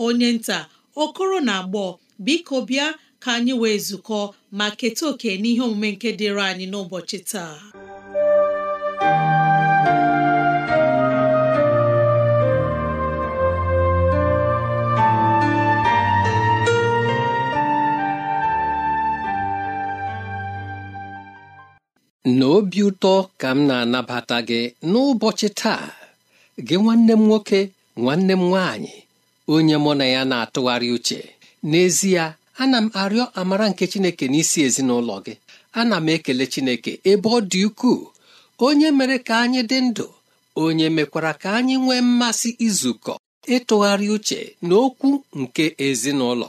onye nta okoro na agbọ biko bịa ka anyị wee zukọ ma keta oke n'ihe omume nke dịịrị anyị n'ụbọchị taa n'obi ụtọ ka m na-anabata gị n'ụbọchị taa gị nwanne m nwoke nwanne m nwanyị. onye mụ na ya na-atụgharị uche n'ezie ana m arịọ amara nke Chineke n'isi ezinụlọ gị ana m ekele Chineke ebe ọ dị ukwuu onye mere ka anyị dị ndụ onye mekwara ka anyị nwee mmasị izukọ ịtụgharị uche n'okwu nke ezinụlọ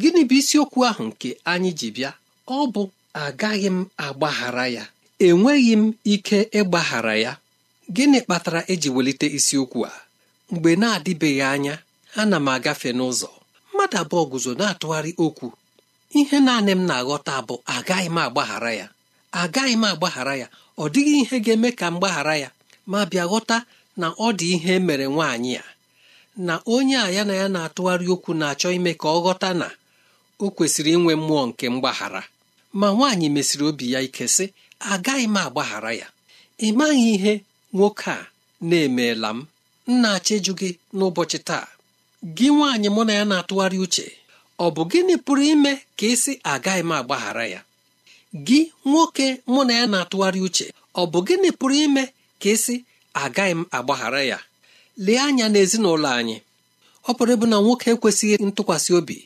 gịnị bụ isiokwu ahụ nke anyị ji bịa ọ bụ agaghị m agbaghara ya enweghị m ike ịgbaghara ya gịnị kpatara eji welite isiokwu a mgbe na-adịbeghị anya ana m agafe n'ụzọ mmadụ abụọ guzo na-atụgharị okwu ihe naanị m na-aghọta bụ agaghị m agbaghara ya agaghị m agbaghara ya ọ dịghị ihe ga-eme ka m gbaghara ya ma bịa ghọta na ọ dị ihe e mere nwaanyị a. na onye a ya na ya na-atụgharị okwu na-achọ ime ka ọ ghọta na o kwesịrị inwe mmụọ nke mgbaghara ma nwaanyị mesịrị obi ya ike sị agaghị m agbaghara ya ị maghị ihe nwoke a na-emeela m m na-achọ gị n'ụbọchị taa gị nwaanyị mụ na ya na-atụgharị uche ọ bụ gịnị pụrụ ime ka ịsị agaghị m agbaghara ya gị nwoke mụ na ya na-atụgharị uche ọ bụ gịnị pụrụ ime ka ịsị agaghị m agbaghara ya lee anya n'ezinụlọ anyị ọ pụrụ ịbụ na nwoke ekwesịghị ntụkwasị obi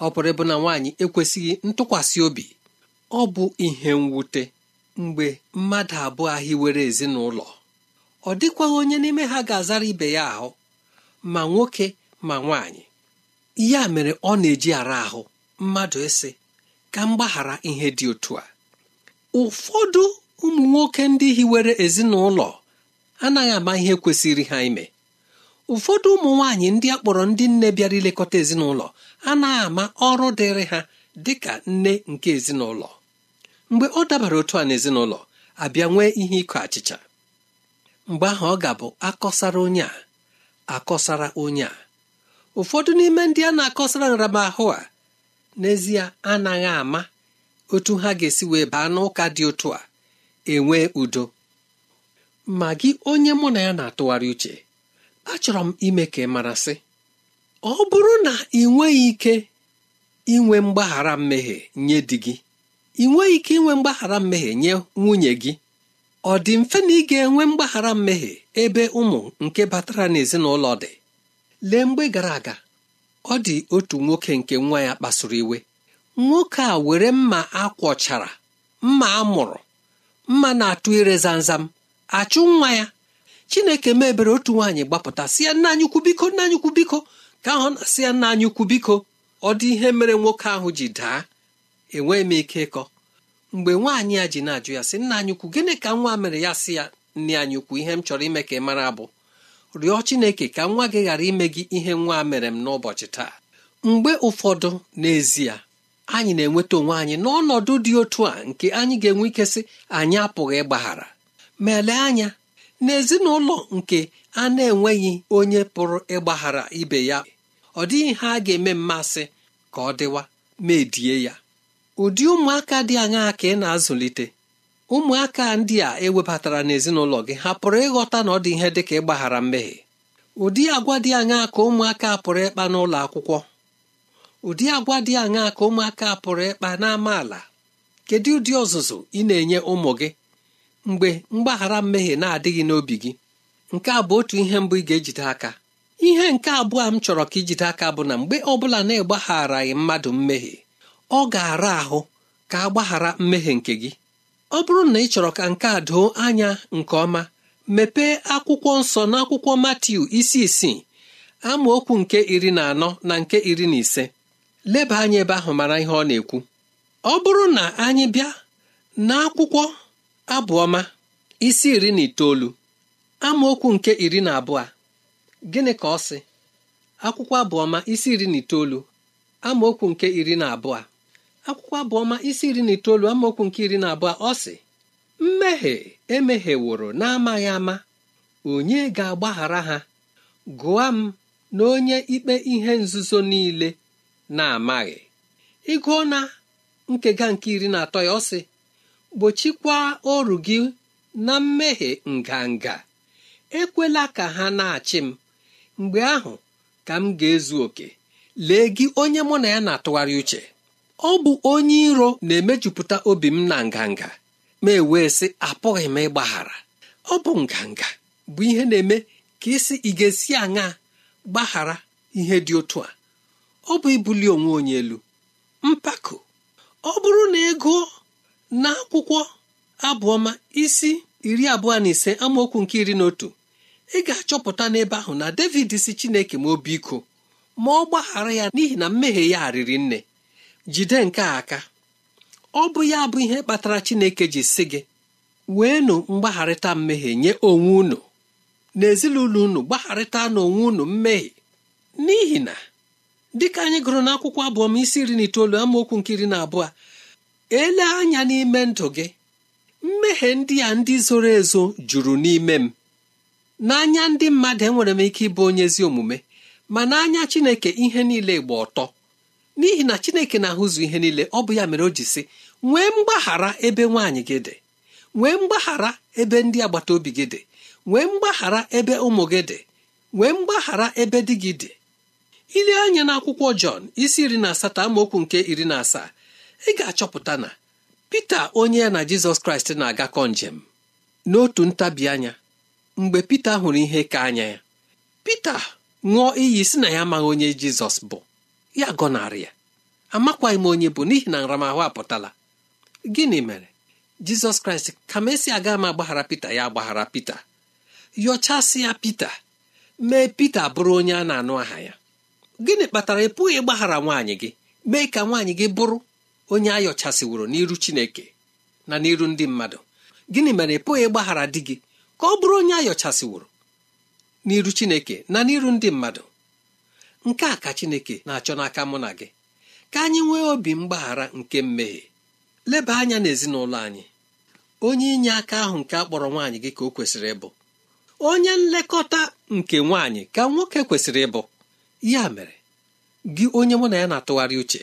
ọ pụrụ ịbụ na nwaanyị ekwesịghị ntụkwasị obi ọ bụ ihe mwute mgbe mmadụ abụọ hiwere ezinụlọ ọ dịkwaghị onye n'ime ha ga-azara ibe ya ahụ ma nwoke ma nwaanyị ya mere ọ na-eji ara ahụ mmadụ ịsị ka m gbaghara ihe dị otu a ụfọdụ ụmụ nwoke ndị hiwere ezinụlọ anaghị ama ihe kwesịrị ha ime ụfọdụ ụmụ nwaanyị ndị a kpọrọ ndị nne bịara ilekọta ezinụlọ anaghị ama ọrụ dịrị ha dị ka nne nke ezinụlọ mgbe ọ dabara otu a n'ezinụlọ abịa nwee ihe ịkọ achịcha mgbe ahụ ọ ga-abụ akọsara onye a akọsara onye a ụfọdụ n'ime ndị a na-akọsara nramahụ a n'ezie anaghị ama otu ha ga-esi wee baa n'ụka dị otu a enwee udo ma gị onye mụ na ya na-atụgharị uche achọrọ m ime ka ị mara sị ọ bụrụ na ị nweghị ike inwe mgbaghara mmehie nye di gị ị nweghị ike inwe mgbaghara mmehie nye nwunye gị ọ dị mfe na ị ga-enwe mgbaghara mmehie ebe ụmụ nke batara n'ezinụlọ dị lee mgbe gara aga ọ dị otu nwoke nke nwa ya kpasuru iwe nwoke a were mma akwọchara mma a mụrụ mma na-atụ ire zamzam achụ nwa ya chineke mebere otu nwaanyị gbapụta si ya nna anyị ukwu biko nna anyị ukwu biko ka ahụ si ya nna anyị ukwu biko ọ dị ihe mere nwoke ahụ ji daa enweghị m ike ịkọ mgbe nwaanyị ya ji na-ajụ ya sị nna anyị ukwu gịnị ka nwa mere ya si ya nne anyị ukwu ihe m chọrọ ime ka ị mara abụ rịọ Chineke ka nwa gị ghara ime gị ihe nwa mere m n'ụbọchị taa mgbe ụfọdụ n'ezie anyị na-enweta onwe anyị n'ọnọdụ dị otu a nke anyị ga-enwe ike sị anyị apụghị ịgbaghara ma elee anya n'ezinụlọ nke a na-enweghị onye pụrụ ịgbaghara ibe ya ọ dịghị ha ga-eme mmasị ka ọ dịwa ma edie ya ụdị ụmụaka dị aṅaa ka ị na-azụlite ụmụaka ndị a ewebatara n'ezinụlọ gị ha pụrụ ịghọta na ọ dị ihe dị ka ịgbaghara mmehie ụdị agwa dị aṅaa ka ụmụaka pụrụ ịkpa n'ụlọ akwụkwọ ụdị agwa dị aṅaa ka ụmụaka pụrụ ịkpa ala? kedu ụdị ọzụzụ ị na-enye ụmụ gị mgbe mgbaghara mmehie na-adịghị n'obi gị nke a bụ otu ihe mbụ ị ga-ejide aka ihe nke abụọ m chọrọ ka ijide aka bụ na mgbe ọ bụla na-agbagharaghị mmadụ mmehie ọ ga-ara ahụ ka agbaghara mmehie nke gị ọ bụrụ na ị chọrọ ka nke a doo anya nke ọma mepee akwụkwọ nsọ n'akwụkwọ Matiu isi isii amaokwu nke iri na anọ na nke iri na ise leba anya ebe ahụ mara ihe ọ na-ekwu ọ bụrụ na anyị bịa n'akwụkwọ abụọma isi iri na itoolu amaokwu nke iri na abụọ gịnị ka ọ sị akwụkwọ abụọma isi iri na itoolu amaokwu nke iri na abụọ akwụkwọ abụọma isi iri na itoolu amaokwu nke iri na abụọ ọ sị mmehie emehieworo na-amaghị ama onye ga-agbaghara ha gụọ m na onye ikpe ihe nzuzo niile na-amaghị ịgụọ na nkega nke iri na atọ ya ọ sị gbochikwaa oru gị na mmehie nganga ekwela ka ha na-achị m mgbe ahụ ka m ga-ezu oke lee gị onye mụ na ya na-atụgharị uche ọ bụ onye iro na-emejupụta obi m na nganga ma ewee sị apụghị m ịgbaghara ọ bụ nganga bụ ihe na-eme ka isi ị ga-esi aṅa gbaghara ihe dị otu a ọ bụ ibuli onwe onye elu mpako ọ bụrụ na ego na akwụkwọ abụọma isi iri abụọ na ise amaokwu nke iri na otu ị ga-achọpụta n'ebe ahụ na David si Chineke ma obi iko ma ọ gbaghara ya n'ihi na mmehie ya riri nne jide nke aka ọ bụ ya bụ ihe kpatara Chineke ji sị gị weenụ mgbagharịta mmehie nye onwe unu n'ezinụlọ unu gbagharịta n'onwe unu mmehie n'ihi na dịka anyị gụrụ n'akwụkwọ abụọ isi iri na itoolu amaokwu nke iri na abụọ ele anya n'ime ndụ gị mmehie ndị a ndị zoro ezo juru n'ime m n'anya ndị mmadụ enwere m ike ịbụ onye ezi omume ma n'anya Chineke ihe niile gba ọtọ n'ihi na chineke na-ahụzụ ihe niile ọ bụ ya mere o ji sị nwee mgbaghara ebe nwaanyị gị dị nwee mgbaghara ebe ndị agbata obi gị dị nwee mgbaghara ebe ụmụ gị dị nwee mgbaghara ebe di gị dị ile anya n'akwụkwọ Jọn isi iri na asatọ amaokwu nke iri na asaa ị ga-achọpụta na Pita onye ya na Jizọs Kraịst na-agakọ njem n'otu ntabi anya mgbe Pita hụrụ ihe ka anya ya Pita ṅụọ iyi si na ya amaghị onye Jizọs bụ ya gọnarị ya amakwaghị m onye bụ n'ihi na nramahụ apụtala gịnị mere jizọs kraịst ka m esi aga m agbaghara pita ya agbaghara pita yọchasị ya pita mee pita bụrụ onye a na-anụ aha ya gịnị kpatara ị pụghị ịgbaghara nwaanyị gị mee ka nwaanyị gị bụrụ onye a yọchasịworo n'iru chineke na n'iru ndị mmadụ gịnị mere ị pụghị ịgbaghara di gị ka ọ bụrụ onye a yọchasịworo n'iru chineke na n'iru ndị mmadụ nke a ka Chineke na-achọ n'aka mụ na gị ka anyị nwee obi mgbaghara nke mmehie leba anya n'ezinụlọ anyị onye inye aka ahụ nke a kpọrọ nwaanyị gị ka o kwesịrị ịbụ onye nlekọta nke nwaanyị ka nwoke kwesịrị ịbụ ya mere gị onye mụ na ya na-atụgharị uche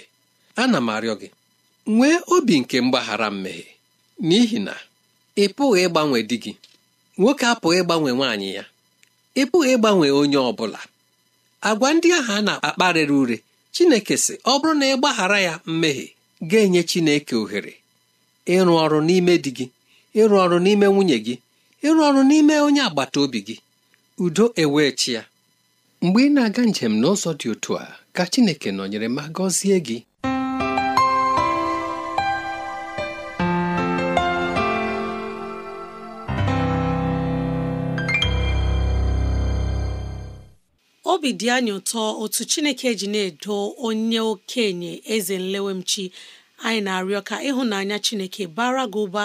ana m arịọ gị nwee obi nke mgbaghara mmehie n'ihi na ị pụghị ịgbanwe di gị nwoke apụghị ịgbanwe nwaanyị ya ị pụghị ịgbanwe onye ọ bụla agwa ndị ahụ a na-akparịrị ure Chineke sị ọ bụrụ na ị gbaghara ya mmehie ga-enye Chineke ohere ịrụ ọrụ n'ime di gị ịrụ ọrụ n'ime nwunye gị ịrụ ọrụ n'ime onye agbata obi gị udo ewechi ya mgbe ị na-aga njem n'ụzọ dị otu a ka Chineke nọnyere ma gọzie gị obi dị anyị ụtọ otu Chineke ji na-edo onye okenye eze nlewemchi anyị na-arịọ ka ịhụnanya Chineke bara gị ụba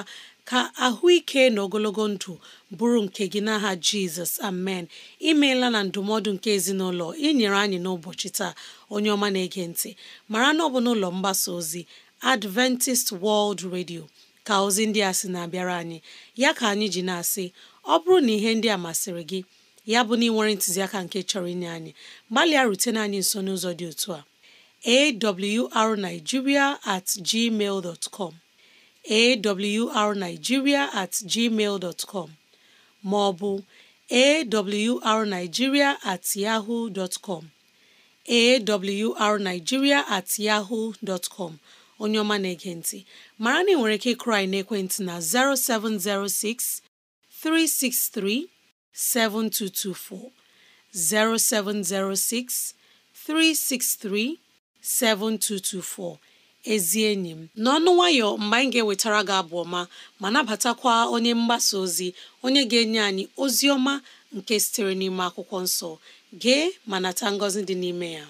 ka ahụike na ogologo ndụ bụrụ nke gị n'aha Jizọs amen imeela na ndụmọdụ nke ezinụlọ inyere anyị n'ụbọchị taa onye ọma na-ege ntị mara na ọ bụ n'ụlọ mgbasa ozi Adventist World Radio ka ozi ndị a sị na-abịara anyị ya ka anyị ji na-asị ọ bụrụ na ihe ndị a masịrị gị ya bụ na ị nwere ntụziaka nke chọrọ inye anyị gbalịa rutene anyị nso n'ụzọ dị otu a awrnigeria at gmail com awrnigeria at gmail com ma ọ bụ awrnigeria at yahoo dot com awrnigeria at yahoo com onye ọma na-ege mara na ị nwere ike ịkụrụ anyị n'ekwentị na 0706 363 7224 0706 363 7224 ezi enyi m n'ọnụ nwayọ mgbe anyị ga-ewetara gị abụ ọma ma nabatakwa onye mgbasa ozi onye ga-enye anyị ozi ọma nke sitere n'ime akwụkwọ nsọ gee ma nata ngọzi dị n'ime ya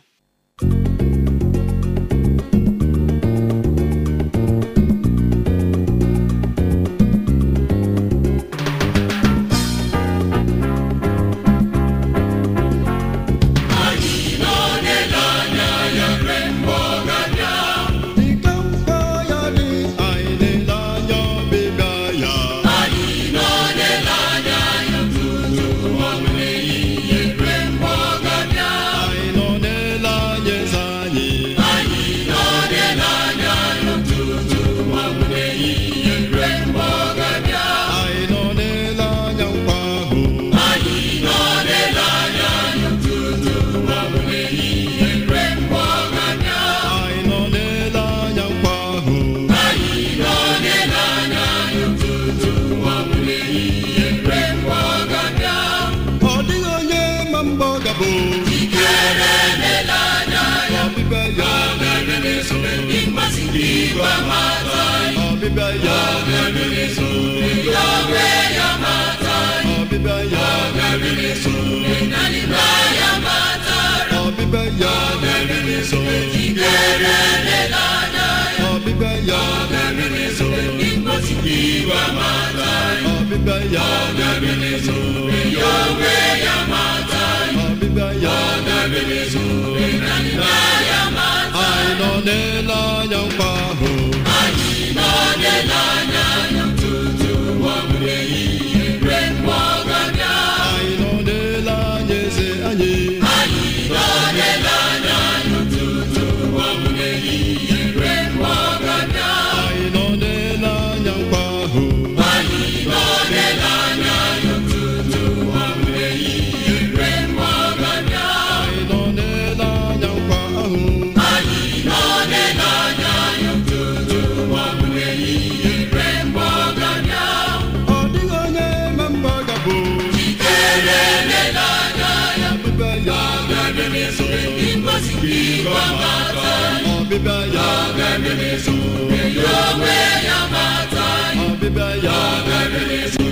ezo ọbịbịa ya bịara ọbịbịa ya bịara onwe ya ọbịbịa ya anyị nọ n'ele anya nkwa ahụ anyị nọ n'ele anya tutu ọ bụrụ eyi ọbịbịa ya ga-emerizu ya onwe ya mata ọbịbịa ya ga-emerizu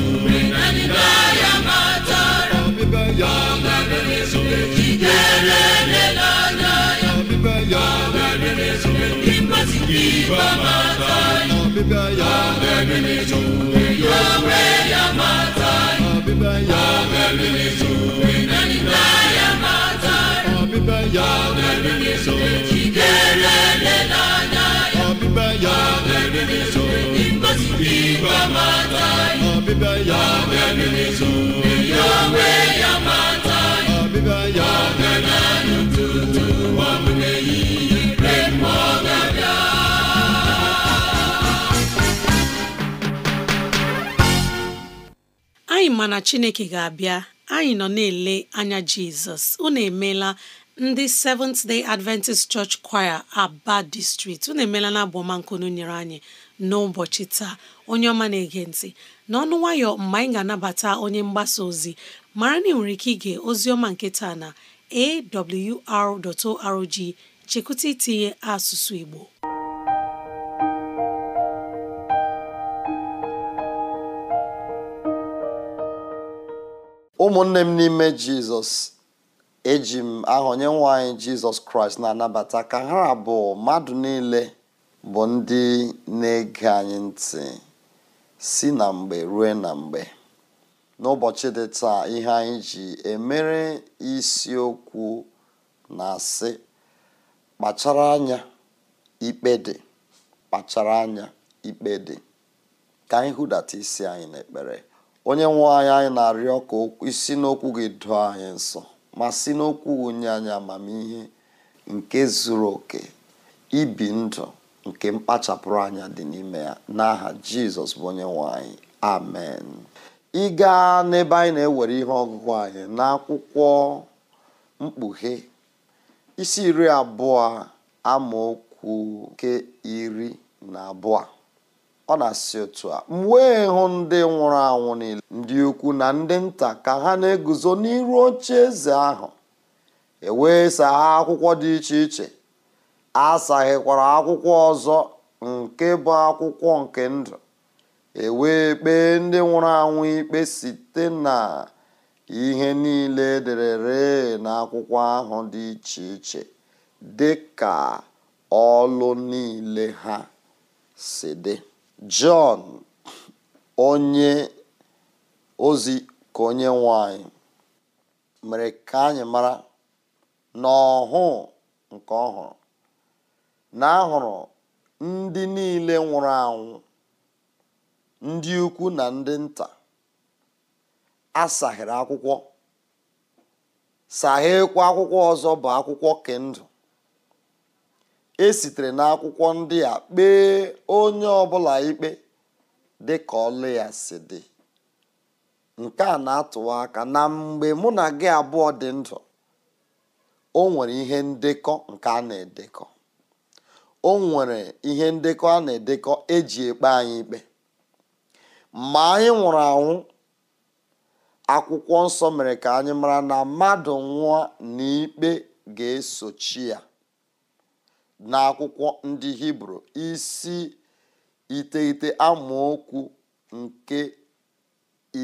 ya mata ọbịbịa ya ga-emerizu ya ọbịbịa ya ga ịgba mata ọbịbịa ya ga ya onwe ya mata ọbịbịa ya ya meriri so chiderele n'anya ya ọbịbịa ya meriri so ngozi igwe mata ya ọbịbịa ya meriri so ya onwe ya mata ya ọbịbịa ya meriri ụtụtụ ọbụla ehihie remọ anyị ma na chineke ga-abịa anyị nọ na-ele anya jizọs unu emeela ndị Seventh Day Adventist Church Choir Aba District unu emeela na abụọmankunu nyere anyị n'ụbọchị taa onye ọma na-ege ntị n'ọnụ nwayọ mgbe anyị ga-anabata onye mgbasa ozi mara na ị nwere ike ige ozi ọma nke taa na awr.org chekwụta itinye asụsụ Igbo ụmụnne m n'ime Jizọs eji m aha onyenwe anyị jizọs kraịst na-anabata ka ha abụọ mmadụ niile bụ ndị na-ege anyị ntị si na mgbe rue na mgbe n'ụbọchị dị taa ihe anyị ji emere isiokwu na-asị kpachara anya ikpe dị kpachara anya ikpe ka anyị hụdata isi anyị n'ekpere onye nwe anyị anyị na-arịọ ka isi n'okwu gị doo anyị nsọ ma si n'okwu onye anya amamihe nke zuru oke ibi ndụ nke mkpachapụrụ anya dị n'ime ya n'aha jizọs bụ onye nwe amen ị gaa n'ebe anyị na-ewere ihe ọgụgụ anyị n'akwụkwọ mkpughe isi iri abụọ amaokwu nke iri na abụọ ọ na-asị otu a m wee hụ ndị nwụrụ anwụ niile ndị ukwu na ndị nta ka ha na-eguzo n'iru oche eze ahụ ewee ha akwụkwọ dị iche iche asaghịkwara akwụkwọ ọzọ nke bụ akwụkwọ nke ndụ ewee kpee ndị nwụrụ anwụ ikpe site na ihe niile ederere n'akwụkwọ ahụ dị iche iche dị ka ọlụ niile ha si dị Jọn onye ozi ka onye nwanyị mere ka anyị mara na nke ọhụrụ na ahụrụ ndị niile nwụrụ anwụ ndị ukwu na ndị nta asaghịrị akwụkwọ saghekwa akwụkwọ ọzọ bụ akwụkwọ kendụ e sitere n'akwụkwọ ndị a kpee onye ọbụla ikpe dị ka ọlụ ya si dị nke a na-atụwa aka na mgbe mụ na gị abụọ dị ndụ o nwere ihe ndekọ nke a na-edekọ o nwere ihe ndekọ a na-edekọ eji ekpe anyị ikpe ma anyị nwụrụ anwụ akwụkwọ nsọ mere ka anyị mara na mmadụ nwụọ na ikpe ga-esochi ya n'akwụkwọ ndị hibru isi iteghete amaokwu nke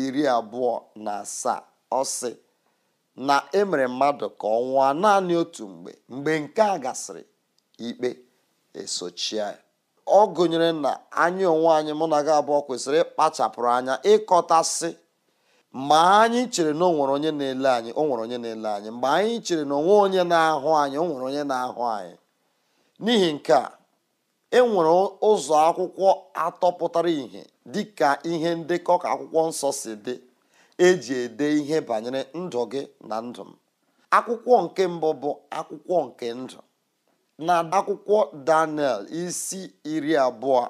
iri abụọ na asaa ọsị na emere mmadụ ka ọ nwụọ naanị otu mgbe mgbe nke a gasịrị ikpe esochie ọ gụnyere na anyị onwe anyị mụ na gị abụọ kwesịrị ịkpachapụrụ anya ịkọtasị ma anyị chere na o nwere onye na-ele anyị o nwere onye na-ele anyị mgbe anyị chere na onwe onye na-ahụ anyị o nwere onye na-ahụ anyị n'ihi nke a e nwere ụzọ akwụkwọ atọ pụtara ìhè dị ka ihe ndekọ ka akwụkwọ nsọ si dị eji ede ihe banyere ndụ gị na ndụ m akwụkwọ nke mbụ bụ akwụkwọ nke ndụ na akwụkwọ daniel isi iri abụọ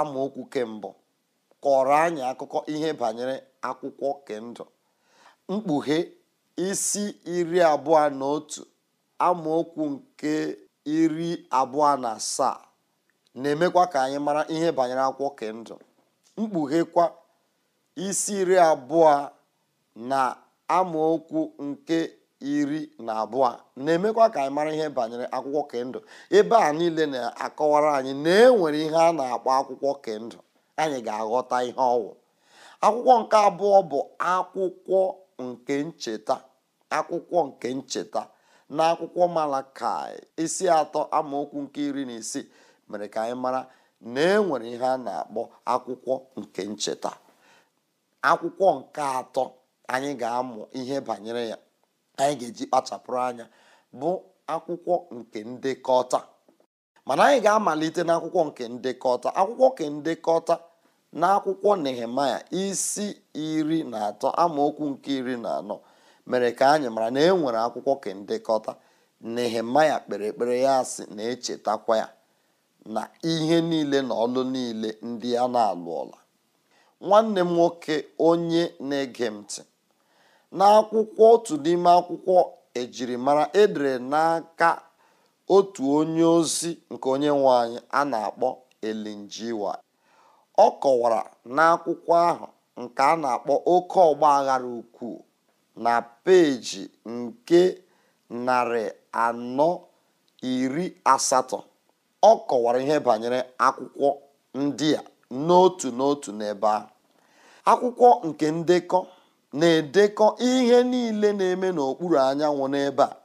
amaokwu kembụ kọrọ anyị akụkọ ihe banyere akwụkwọ kendụ mkpughe isi iri abụọ na otu amaokwu nke iri abụọ na asaa na-emekwa ka anyị mara ihe banyere akwụkwọ kendụ mkpughekwa isi iri abụọ na amaokwu nke iri na abụọ na-emekwa ka anyị mara ihe banyere akwụkwọ kendụ ebe a niile na-akọwara anyị na enwere ihe a na-akpọ akwụkwọ ka anyị ga-aghọta ihe ọwụ akwụkwọ nke abụọ bụ akwụkwọ nke ncheta akwụkwọ nke ncheta n'akwụkwọ ka isi atọ amaokwu nke iri na isii mere ka anyị mara na enwere ihe a na-akpọ akwụkwọ nke ncheta akwụkwọ nke atọ anyị ga-amụ ihe banyere ya anyị ga-eji kpachapụrụ anya bụ akwụkwọ nke ndekọta mana anyị ga-amalite n'akwụkwọ nke ndekọta akwụkwọ nke ndekọta na akwụkwọ isi iri na atọ amaokwu nke iri na anọ mere ka anyị mara na e nwere akwụkwọ kendekọta nehemaya kpere ekpere ya si na-echetakwa ya na ihe niile na ọlụ niile ndị a na-alụ ọla nwanne m nwoke onye na-ege ntị n'akwụkwọ otu n'ime akwụkwọ ejirimara edere n'aka otu onye ozi nke onye nwe anyị a na-akpọ elinjiwa ọ kọwara n'akwụkwọ ahụ nke a na-akpọ oke ọgba aghara ukwuu na peeji nke narị anọ iri asatọ ọ kọwara ihe banyere akwụkwọ ndị a n'otu n'otu n'ebe a akwụkwọ nke ndekọ na-edekọ ihe niile na-eme n'okpuru anyanwụ n'ebe a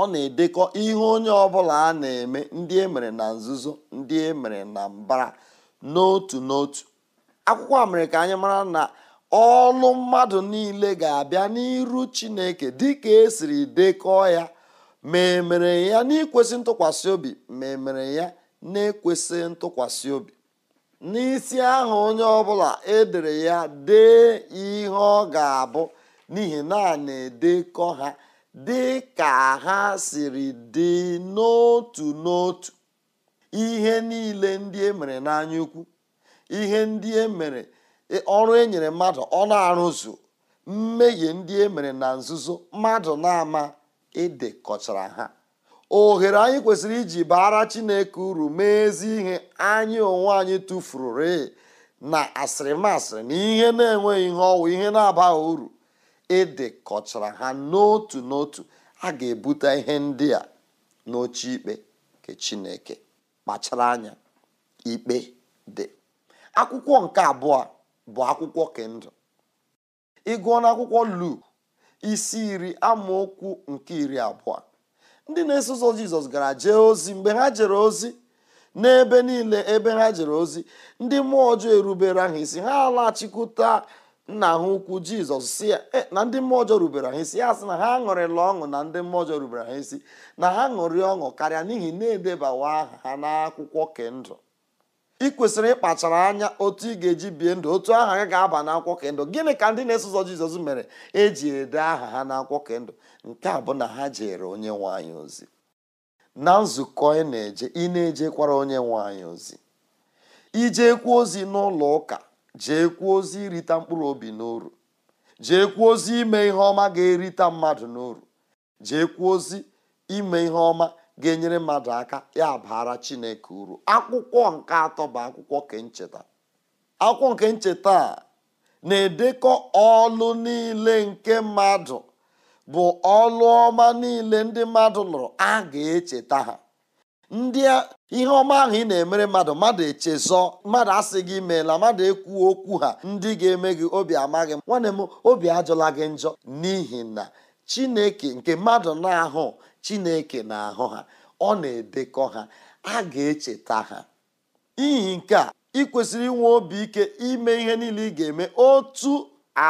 ọ na-edekọ ihe onye ọ bụla a na-eme ndị e mere na nzuzo ndị e mere na mbara n'otu n'otu akwụkwọ a mere ka anyị mara na ọnụ mmadụ niile ga-abịa n'iru chineke dịka esiri dekọọ ya ma emere ya n'ikwesị ntụkwasị obi ma e ya na-ekwesị ntụkwasị obi n'isi ahụ onye ọ ọbụla edere ya dee ihe ọ ga-abụ n'ihi na a na-edekọ ha dị ka ha siri dị n'otu n'otu ihe niile ndị e mere n'anya ukwu ihe ndị e mere ọrụ e nyere mmadụ ọ na-arụzu mmehie ndị e mere na nzuzo mmadụ na-ama kọchara ha ohere anyị kwesịrị iji baara chineke uru mee ezi ihe anyị onwe anyị tụfuru re na asịrịmasịrị na ihe na-enweghị ihe ọwụ ihe na-abaghị uru kọchara ha n'otu n'otu a ga-ebute ihe ndị a n'oche ikpe nke chineke kpachara anya ikpe dị akwụkwọ nke abụọ bụ akwụkwọ kendụ ịgụọ n'akwụkwọ Luk isi iri amaokwu nke iri abụọ ndị na-eso ụzọ Jizọs gara jee ozi mgbe ha jere ozi n'ebe niile ebe ha jere ozi ndị mmụọ ọjọọ erubere ha isi ha alachikwuta nna ha ukwu jizọs si ya eh, na ndị mmụọ ọjọọ rubere ha isi ya sị na ha ṅụrịla ọṅụ na ndị mmụọ ọjọọ rubere ha isi na ha ṅụrị ọṅụ karịa n'ihi na-edebawa aha ha n'akwụkwọ kendụ ị kwesịrị ịkpachara anya otu ị ga-eji bie ndụ otu aha gị ga-aba n'akwụkwọ kendụ gịnị ka ndị na-eso jizọs mere eji ede aha ha n'akwụkwọ kendụ nke a bụ na ha jere onye nwaanyị ozi na nzukọ ị na-eje ị na-ejekwara onye nwaanyị ozi ije kwuo ozi n'ụlọ ụka kwuo ozi irita mkpụrụ obi n'oru kwuo ozi ime ihe ọma ga-erita mmadụ n'oru kwuo ozi ime ihe ọma ga-enyere mmadụ aka ya bara chineke uru akwụkwọ nke atọ bụ akwụkwọ kencheta akwụkwọ nke ncheta a na-edekọ ọlụ niile nke mmadụ bụ ọlụ ọma niile ndị mmadụ lụrụ a ga-echeta ha ndị ihe ọma ahụ ị na-emere mmadụ mmadụ echezọ mmadụ asị gị meela mmadụ ekwu okwu ha ndị ga-eme gị obi amaghị m nwanne m obi ajọla gị njọ n'ihi na chineke nke mmadụ na-ahụ chineke na-ahụ ha ọ na-edekọ ha a ga-echeta ha ihi nke a ị kwesịrị inwe obi ike ime ihe niile ị ga-eme otu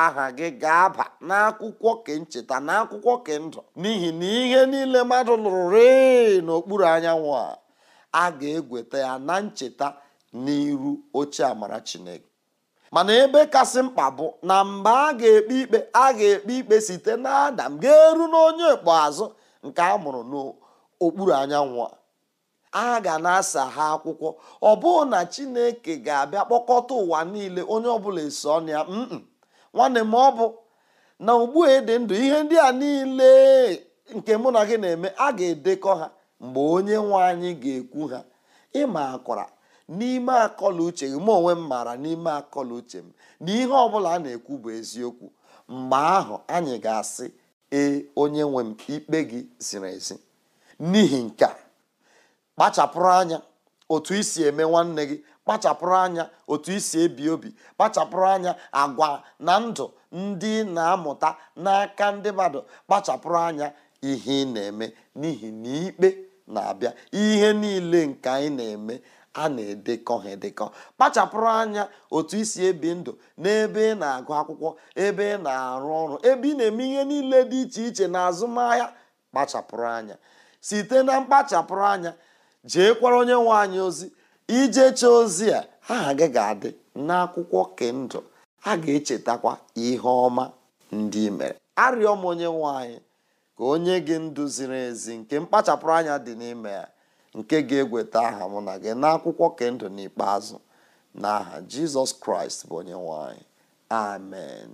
aha gị ga-aba n'akwụkwọ kencheta n'akwụkwọ kendụ n'ihi na ihe niile mmadụ lụrụ ree n'okpuru anyanwụ a a ga-egweta ya na ncheta n'iru oche amara chineke mana ebe kasị mkpa bụ na mgbe a ga-ekpe ikpe a ga-ekpe ikpe site n'adam ga-eru n'onye ikpeazụ nke a mụrụ n'okpuru anyanwụ a ga na-asa ha akwụkwọ ọ bụrụ na chineke ga-abịa kpọkọta ụwa niile onye ọbụla eso ọnụ ya nwanne m ọ bụ na ugbu a dị ndụ ihe ndị a niile nke mụ na gị na-eme a ga-edekọ ha mgbe onye nwe anyị ga-ekwu ha ịma akwara n'ime akọla uche gị m onwe m maara n'ime akọla uche m na ihe ọbụla a na-ekwu bụ eziokwu mgbe ahụ anyị ga-asị ee onye nwe m ikpe gị ziri ezi n'ihi nke a kpachapụrụ anya otu isi eme nwanne gị kpachapụrụ anya otu isi ebi obi kpachapụrụ anya agwa na ndụ ndị na-amụta n'aka ndị mmadụ kpachapụrụ anya ihe ị na-eme n'ihi na ikpe na-abịa ihe niile nke anyị na-eme a na-edekọ ha edekọ kpachapụrụ anya otu isi ebi ndụ n'ebe ị na-agụ akwụkwọ ebe ị na-arụ ọrụ ebe ị na-eme ihe niile dị iche iche na azụmahịa kpachapụrụ anya site na mkpachapụrụ anya jee kwara onye nwe anyị ozi ijecha ozi a aha gị ga-adị n'akwụkwọ kendụ a ga-echetakwa ihe ọma ndị mere arịọ m onye nwe anyị ka onye gị ndụ ziri ezi nke mkpachapụrụ anya dị n'ime ya nke ga-egweta aha mụ na gị n'akwụkwọ kendụ n'ikpeazụ n'aha jizọs kraịst bụ onye nwanyị amen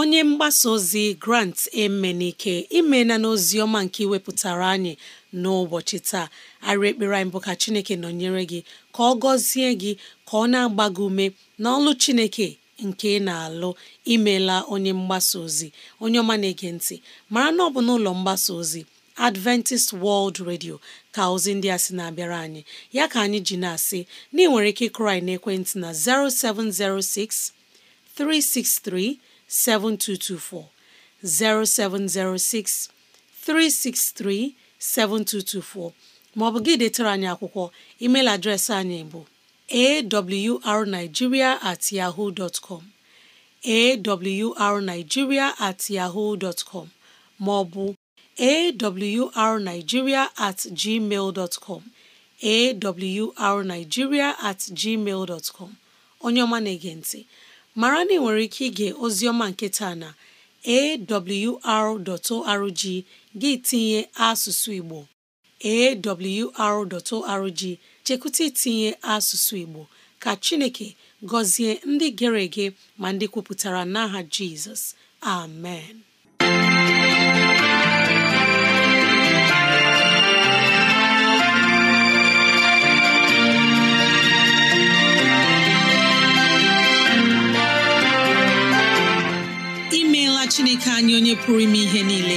onye mgbasa ozi grant emenike imela n'ozi ọma nke iwepụtara anyị n'ụbọchị taa arị ekpere anyị bụ ka chineke nọnyere gị ka ọ gọzie gị ka ọ na-agba gị ume n'ọlụ chineke nke ị na-alụ imela onye mgbasa ozi onye ọma na-ege ntị mara na ọ bụ n'ụlọ mgbasa ozi Adventist World Radio ka ozi ndị a sị na-abịara anyị ya ka anyị ji na-asị na ị nwere ike ịkụrụ na ekwentị na 0706 363 7224 0706 363 7224 ma ọ bụ gị detara anyị akwụkwọ emeil adreesị anyị bụ awrnigeria at yahoo dot com awrnigeria at yahoo dot maọbụ awrnigeria at gmail dot com at gmail dot com onye ọma na-ege ntị mara na ị nwere ike ige ozioma nke taa na awr.org gị tinye asụsụ Igbo awr.org chekwụta itinye asụsụ Igbo ka Chineke gọzie ndị gere ege ma ndị kwupụtara n'aha Jizọs amen chineke anyị onye pụrụ ime ihe niile